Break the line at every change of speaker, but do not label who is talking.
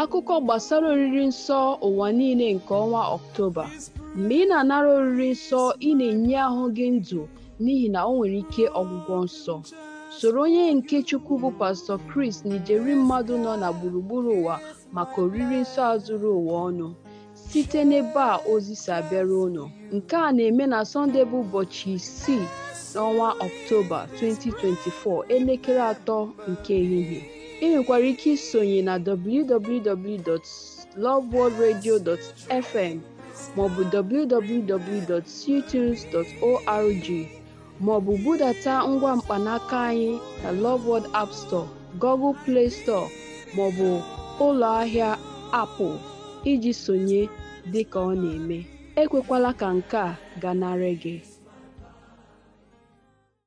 Akụkọ gbasara oriri nsọ ụwa niile nke ọnwa Ọktoba: Mgbe ị na-anara oriri nsọ, ị na-enye ahụ gị ndụ n'ihi na ọ nwere ike ọgwụgwọ nsọ. Soro onye nke Chukwu bụ pastọ Chris na ijeri mmadụ nọ na gburugburu ụwa maka oriri nsọ a zuru ụwa ọnụ, site n'ebe a ozi si abịara unu, nke a na-eme na Sọnde bụ ụbọchị isii n'ọnwa Ọktoba 2024, elekere atọ nke ehihie. Ị nwekwara ike isonye na www.loveworldradio.fm maọbụ www.ctunes.org maọbụ budata ngwa mkpanaka anyị na Love World App Store, Google Play Store maọbụ ụlọ ahịa Apple iji sonye dịka ọ na-eme. Ekwekwala ka nke a gagharị gị!